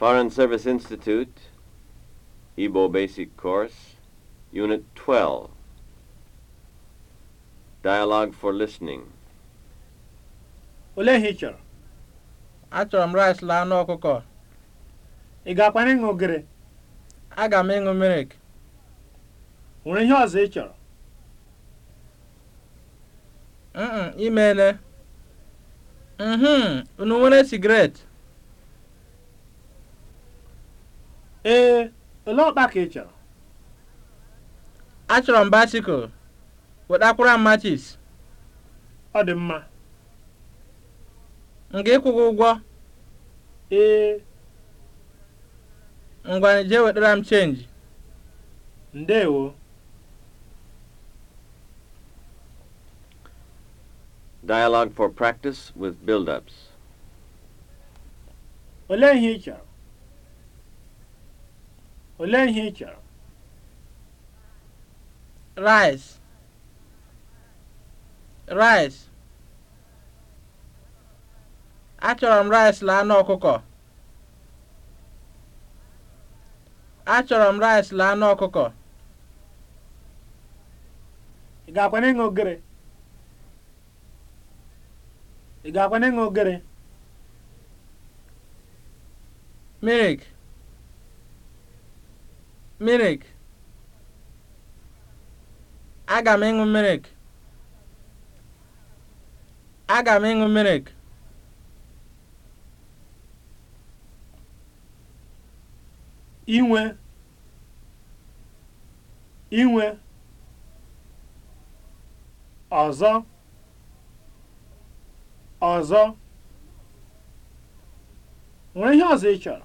Foreign Service Institute, Igbo Basic Course, Unit 12. Dialogue for Listening. Ole ihe ị chọrọ? Achọrọ m rice la anụ ọkụkọ. Ị ga-akwa ịṅụ ogiri? Aga m ịṅụ mirik. Nwere ihe ọzọ ị chọrọ? Mm, imele. Mhm, unu nwere sigaret? ee ole ọkpa ka ị chọrọ achọrọ m basikụl wetakwara m machis ọ dị mma m ga-ịkwụ ụgwọ ee ngwa nje wetara m chenji ndewo Dialogue for practice with build-ups. Olee ihe ị chọrọ? olee ihe ị rice rice achọrọ m rice laa n'ọkụkọ ọkụkọ achọrọ m rice na anụ ị ga-akwa ịṅụ ogere ị ga-akwa ịṅụ ogere milk mirik aga m ịṅụ mirik aga m ịṅụ mirik inwe inwe ọzọ ọzọ nwere ihe ọzọ ị chọrọ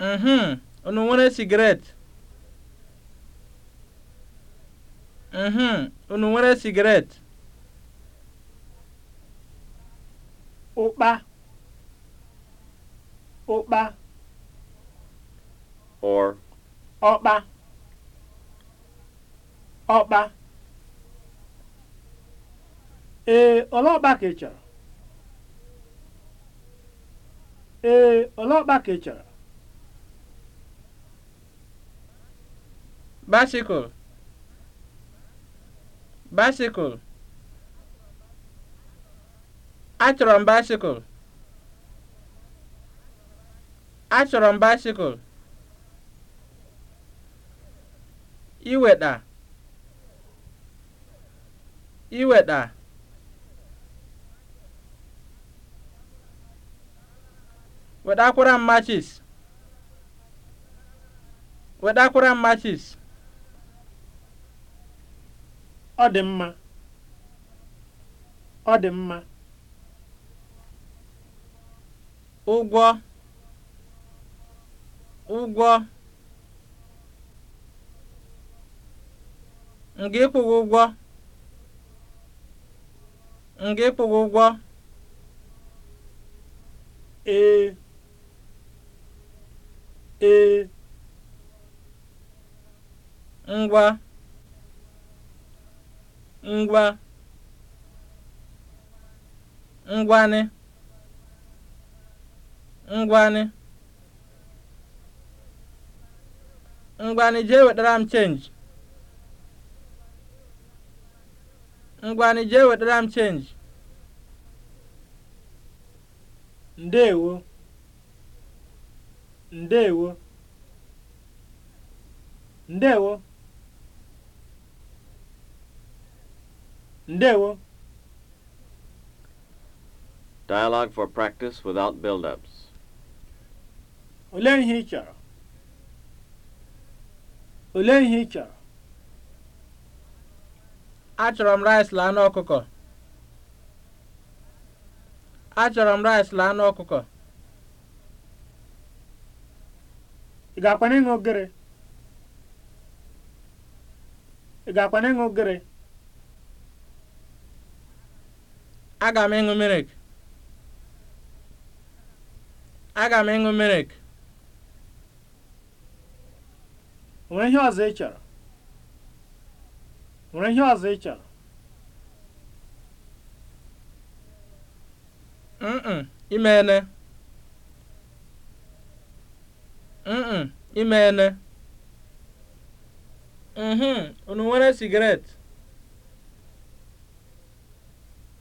mhm unu nwere sigaret mhm unu nwere sigaret ụkpa ụkpa or ọkpa ọkpa ee ọlọkpa ka ị chọrọ ee ọlọkpa ka ị chọrọ bicycle bicycle achọrọ m bicycle achọrọ m bicycle iweta iweta wetakwara m matches wetakwara m matches ọ dị mma ọ dị mma ụgwọ ụgwọ nga ịkwụghị ụgwọ nga ịkwụghị ụgwọ ee ee ngwa ngwa ngwanị ngwanị ngwanị jee wetara m chenji ngwanị jee wetara m chenji ndeewo ndeewo ndeewo ndewo Dialogue for practice without build-ups. Olee ihe ị chọrọ? Olee ihe ị chọrọ? Achọrọ m rice laa anụ ọkụkọ. Achọrọ m rice laa anụ ọkụkọ. Ị ga-akwana ịṅụ ogere? Ị ga ogere? aga m ịṅụ mirik aga m ịṅụ mirik nwere ihe ọzọ ị chọrọ nwere ihe ọzọ ị chọrọ mm imeene mm imeene mhm unu nwere sigaret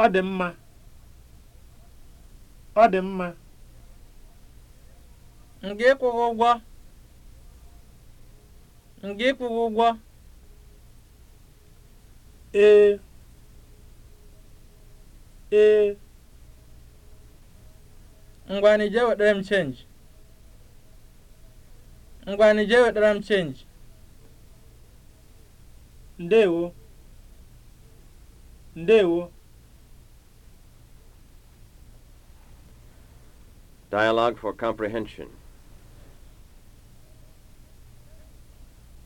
ọ dị mma ọ dị mma m ga-ịkwụghị ụgwọ m ga-ịkwụghị ụgwọ ee ee ngwani jee wetara m chenji ngwani jee wetara m chenji ndewo ndewo Dialogue for comprehension.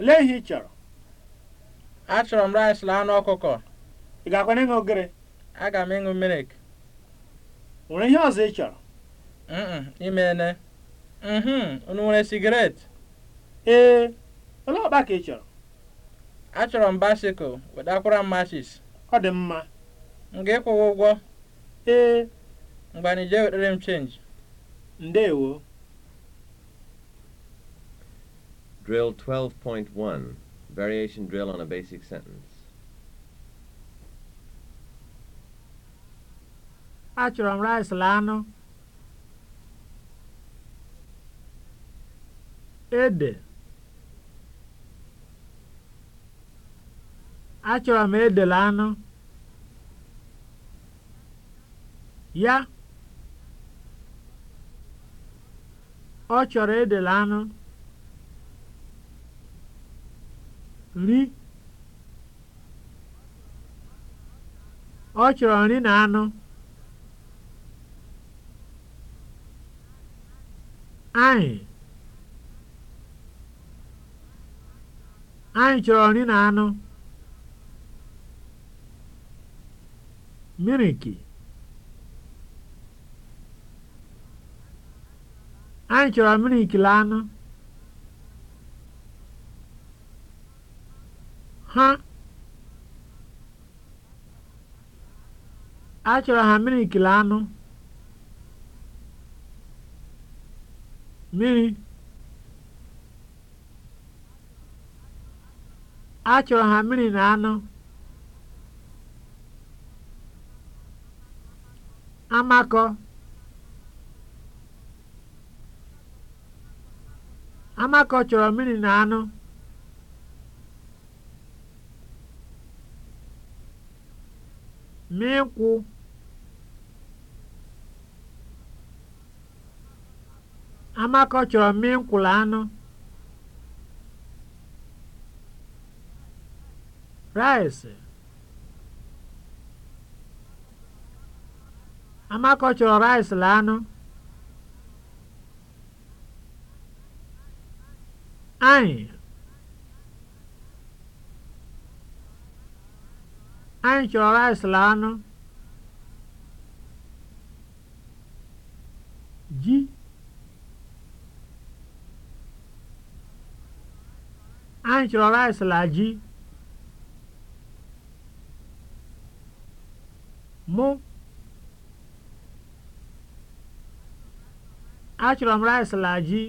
Lee ihe ị chọrọ. Achọrọ m rice na anụ ọkụkọ. Ị ga-akwa ịṅụ ogiri? Aga m ịṅụ mirik. Nwere ihe ọzọ ị chọrọ? ene? Mm-hmm, unu nwere sigaret? Ee, olee ọkpa ka ị chọrọ? Achọrọ m basikụl wetakwara m mashis. Ọ dị mma. M ga-ịkwụwa ụgwọ? Ee. Mgbe anyị m chenji. Ndewo. Drill 12.1, variation drill on a basic sentence. Achọrọ m rice la Ede. Achọrọ m ede la anụ. Ya. Ọ chọrọ edela anụ. Nri. Ọ chọrọ nri na anụ. Anyị. Anyị chọrọ nri na anụ. Miriki. Anyị chọrọ milik anụ. Ha achọrọ ha milik anụ. Mmiri achọrọ ha mmiri na anụ. Amakọ Amakọ chọrọ mmiri na anụ. Mịnkwụ Amakọ chọrọ mịnkwụ na anụ. Rice Amakọ chọrọ rice na anụ. anyị anyị chọrọ rice anụ ji anyị chọrọ rice na ji mụ achọrọ m rice ji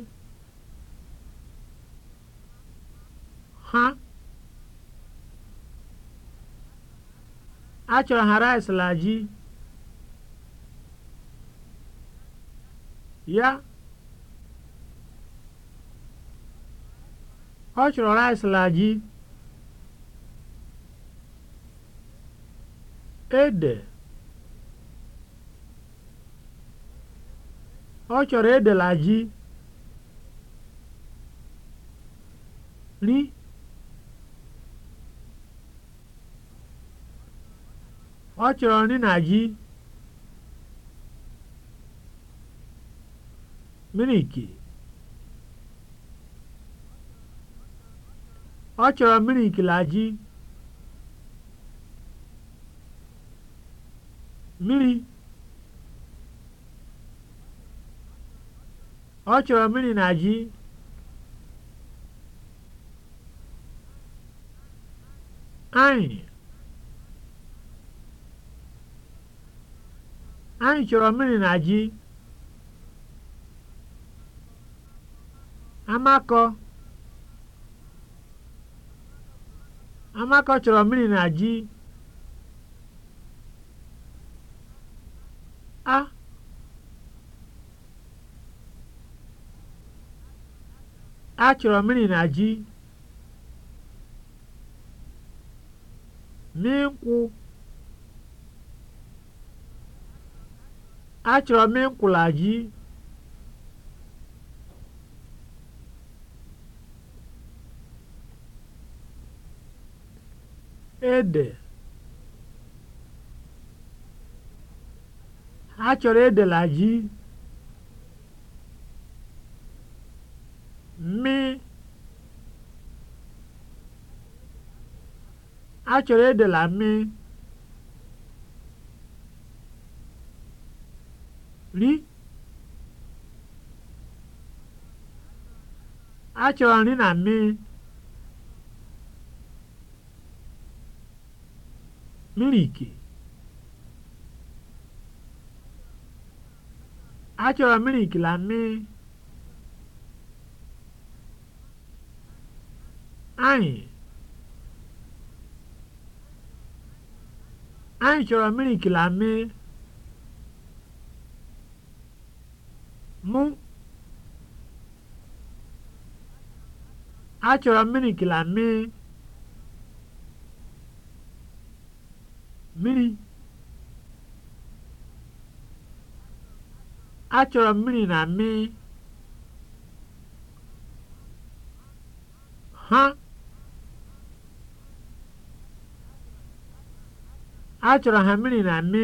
ha achọrọ ha rice la ji ya ọ chọrọ rice la ji ede ọ chọrọ ede la ji ri Ọ chọrọ nri na ji. Miliki. Ọ chọrọ miliki na ji. Mmiri. Ọ chọrọ mmiri na ji. Anyị. Anyị chọrọ mmiri na ji. Amakọ Amakọ chọrọ mmiri na ji. A A chọrọ mmiri na ji. nkwụ Achọrọ m nkwụla gị. Ede. Ha chọrọ edela gị. Mmị. A chọrọ edela mmị. achọrọ nri na mmiri miliki achọrọ miliki na mmiri anyị anyị chọrọ miliki na mmiri M achọrọ mmiri gịlamị mmiri achọrọ mmiri na mmị ha achọrọ ha mmiri na mmị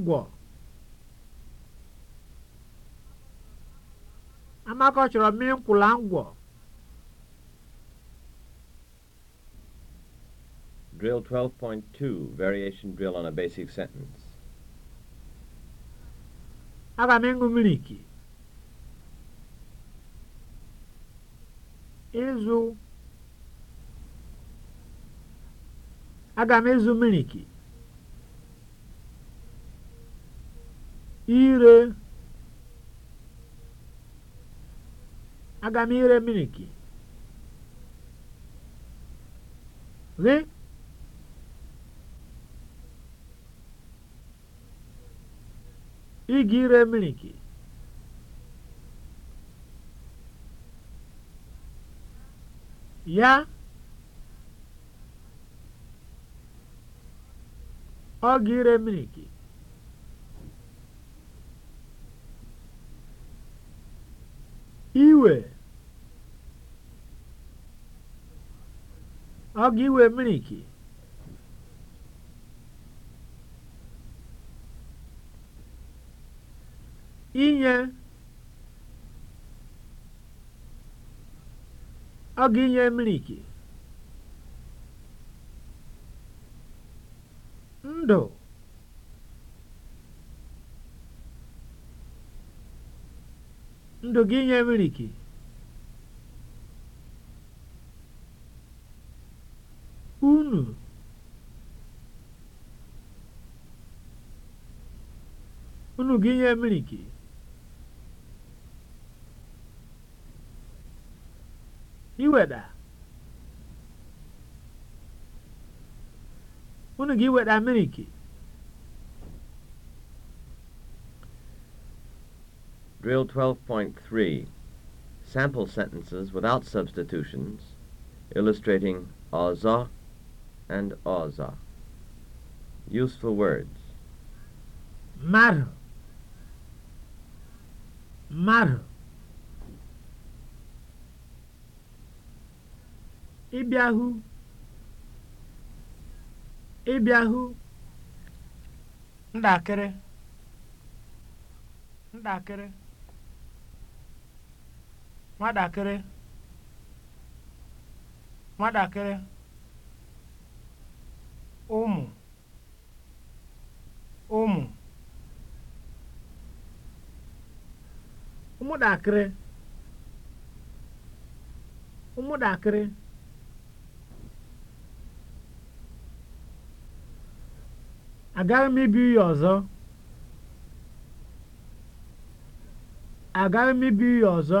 ngwọ Amaka chọrọ mmiri nkwụla ngwọ Drill 12.2, variation drill on a basic sentence. Aga m miliki. Ịzụ. Aga m miliki. ire aga m ire miliki gị ị ga ire miliki ya ọ ga ire miliki iwe ọ ga-iwe miniki inye ọ ga-inye miniki ndụ obodo gị nye miliki? Unu? Unu gị nye miliki? Iweda? Unu gị weda miliki? Drill 12.3 Sample sentences without substitutions, illustrating aza and aza. Useful words. Mar. Mar. Ibiahu. Ibiahu. Ndakere. Ndakere. nwatakịrị nwatakịrị ụmụ ụmụ ụmụdakịrị, ụmụdakịrị, agaghị m ibi ya ọzọ agaghị m ibi ya ọzọ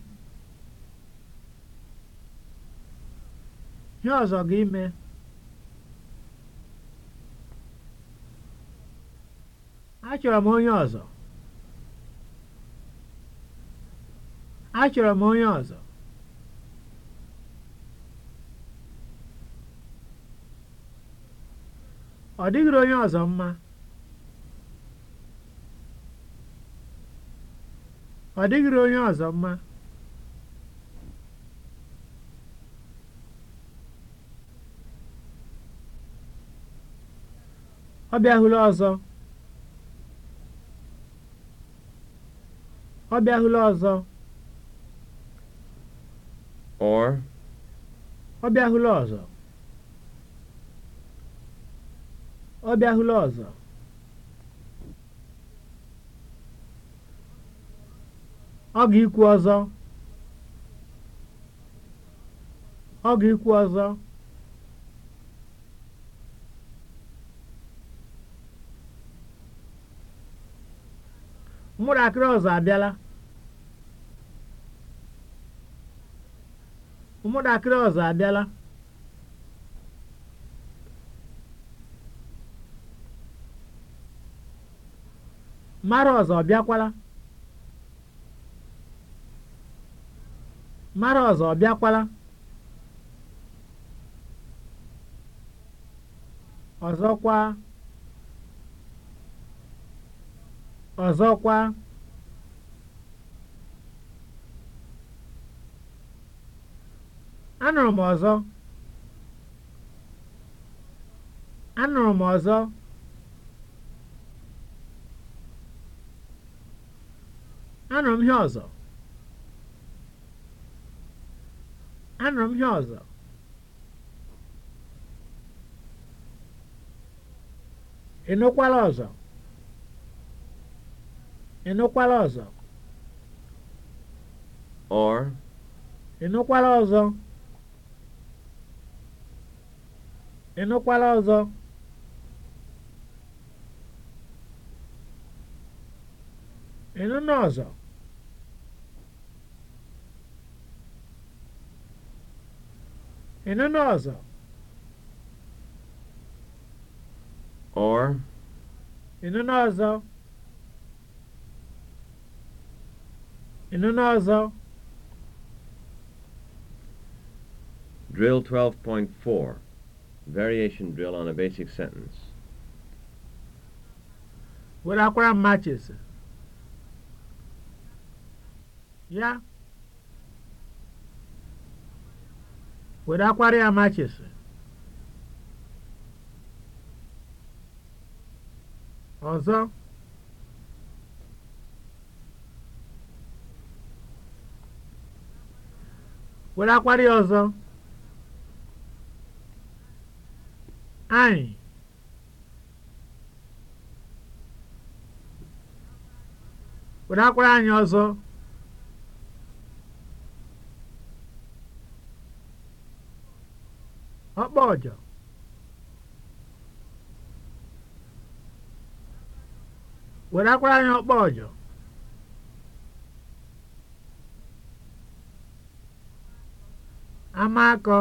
Ihe ọzọ ga-ime? Achọrọ m onye ọzọ. Achọrọ m onye ọzọ. Ọ dịghịrị onye ọzọ mma. Ọ dịghịrị onye ọzọ mma. ọ bịahula ọzọ ọ bịahula ọzọ or ọ bịahula ọzọ ọ bịahula ọzọ ọ ga-ikwu ọzọ ọ ga-ikwu ọzọ akịrị ọzọ abịala Ụmụdakịrị ọzọ abịala mara ọzọ ọbịakwala mara ọzọ ọbịakwala ọzọkwa Ọzọkwa, anụrụ m ọzọ, anụrụ m ọzọ, anụrụ m ihe ọzọ, anụrụ m ihe ọzọ. Ị nụkwala ọzọ? Ị nụkwara ọzọ? Or. Ị nụkwara ọzọ? Ị nụkwara ọzọ? Ị nụna ọzọ? Ị nụna ọzọ? Or. Ị nụna ọzọ? Ịnụnụ ọzọ. Drill 12.4 Variation drill on a basic sentence. Were akwara m matches. Ya. Were akwara ya matches. Ọzọ. were akwara ọzọ anyị were akwara anyị ọjọ amakọ,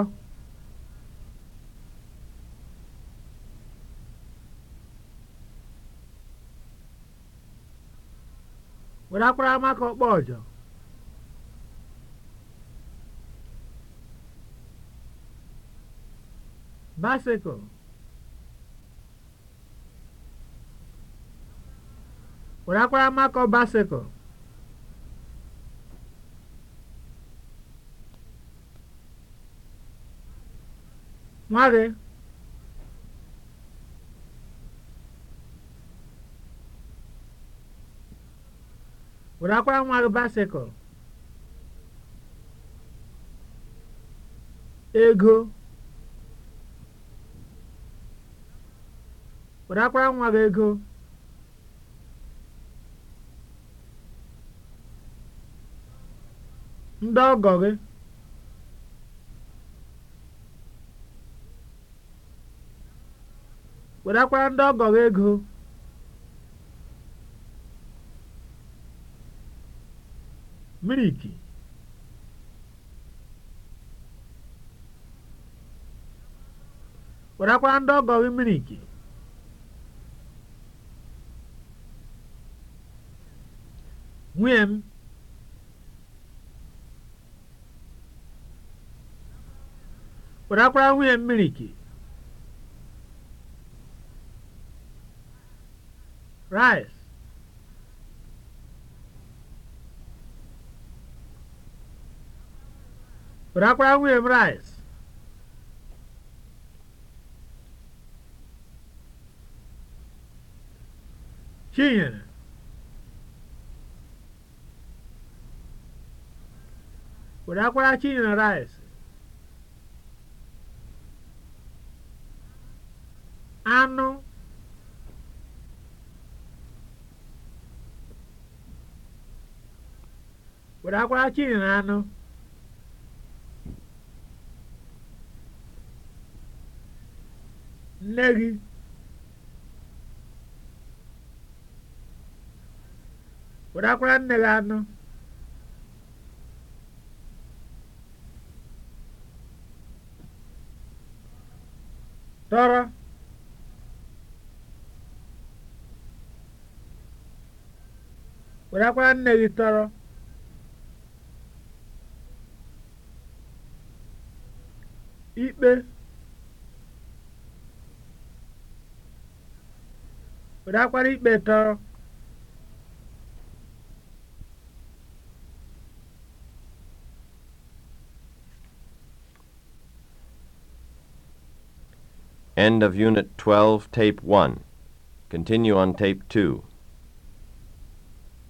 were akwara mako ọkpọ ọjọ were akwara nwa gị wetakwara nwa gị ego wetakwara nwa gị ego ndị ọgọ gị werekwara ndị ọgọrọ ego miriki werekwara ndị ọgọrọ miriki nwunye m werekwara nwunye m miriki rice bịakwara nwunye m rice chinyere bịakwara chinyere rice anụ were akwara chili na anụ nne gị were akwara nne gị anụ tọrọ were akwara nne gị tọrọ ikpe ikpe tọọ End of Unit 12, Tape 1. Continue on Tape 2.